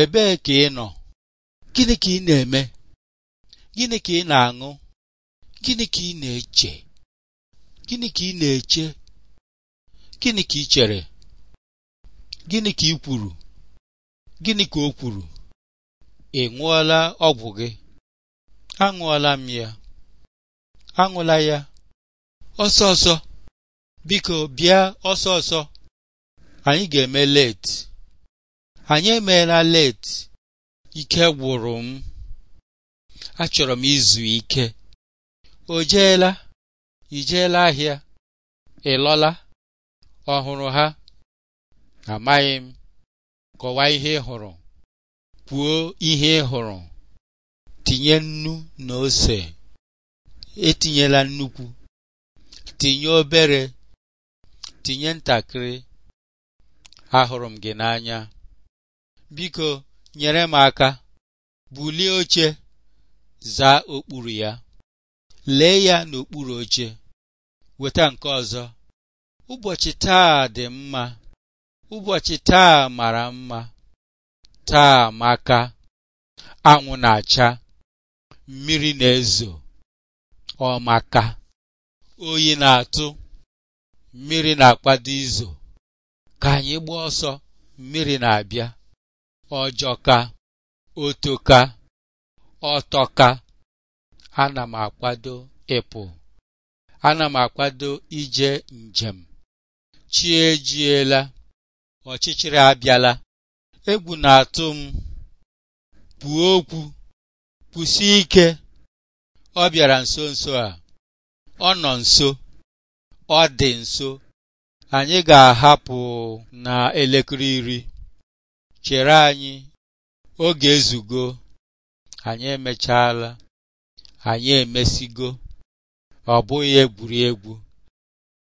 ebee ka ị nọ gịnị ka ị na-eme gịnị ka ị na-aṅụ gịnị ka ị na-eche gịnị ka ị na-eche gịnị ka ị chere gịnị ka ị kwuru gịnị ka o kwuru ị ṅụọla ọgwụ gị aṅụọla m ya aṅụla ya ọsọ ọsọ biko bịa ọsọ ọsọ anyị ga-eme leti anyị emeela leeti. ike gwụrụ m achọrọ m izu ike o jeela ijeela ahịa ịlọla ọhụrụ ha amaghị m kọwaa ihe ị hụrụ kwuo ihe ị hụrụ tinye nnu na ose etinyela nnukwu tinye obere tinye ntakịrị ahụrụ m gị n'anya Biko nyere m aka bulie oche zaa okpuru ya lee ya n'okpuru oche weta nke ọzọ ụbọchị taa dị mma ụbọchị taa mara mma taa maka anwụ na-acha mmiri na-ezo ọ maka oyi na-atụ mmiri na-akpado izo ka anyị gbaa ọsọ mmiri na-abịa ọjọka otoka ọtọka ana m akwado ịpụ ana m akwado ije njem chiejiela ọchịchịrị abịala egwu na-atụ m kwuo okwu kwụsị ike ọ bịara nso nso a ọ nọ nso ọ dị nso anyị ga-ahapụ na elekere iri chere anyị oge ezugo anyị emechaala, anyị emesigo ọ bụghị egwuregwu